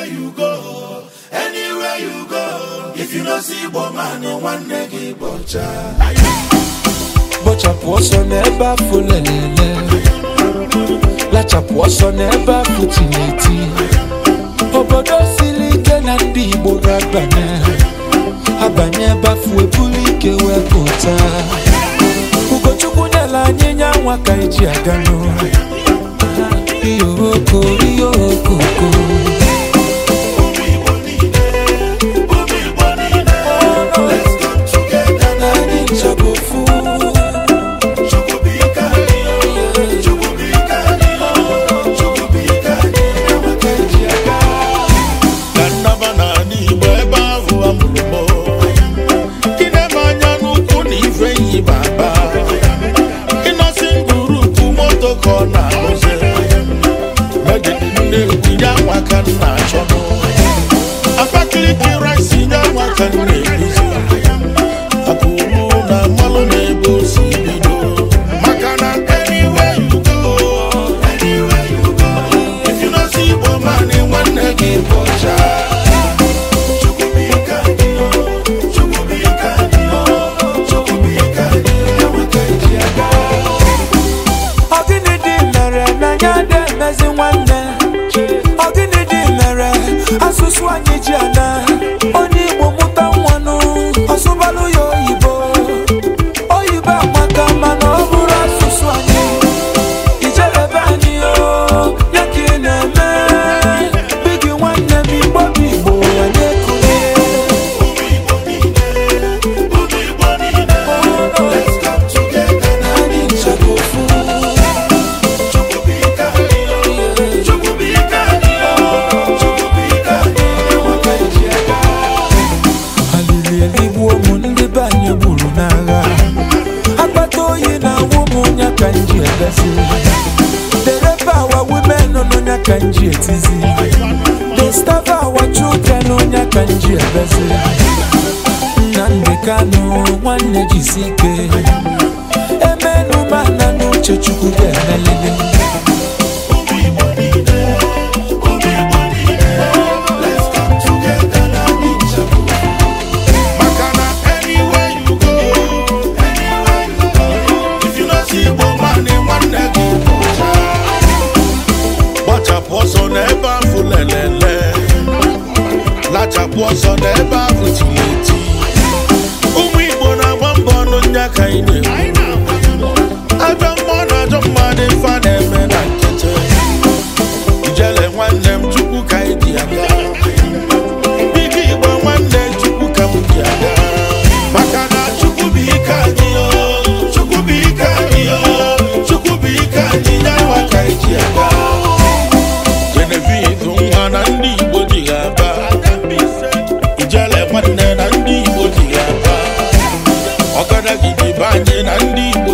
anywhere you go if you no see igbo nwanne gị bọcha bọchapụ ọsọ n'ebe afọ lelele lachapụ ọsọ n'ebe afọ tineti obodo siri ike na ndị igbo ga-abanye abanye ebe afọ eburu ike wee pụta ugochukwu nyela anyị nya ka eji aga n'ụlọ iyoroko nwata nna achọ m Abakaliki rice nye nwata nne ezi dereba our women n'onye ka nji etizi disturb our children n'onye ka nji ebezi na ọsọ n'ebe ahụ tiri eti ụmụ Igbo na-agba mbọ ọnụ nya ka anyị na adị na ndị